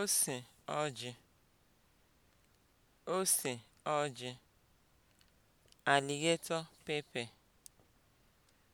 ose ọjị ose ọjị alligator pepper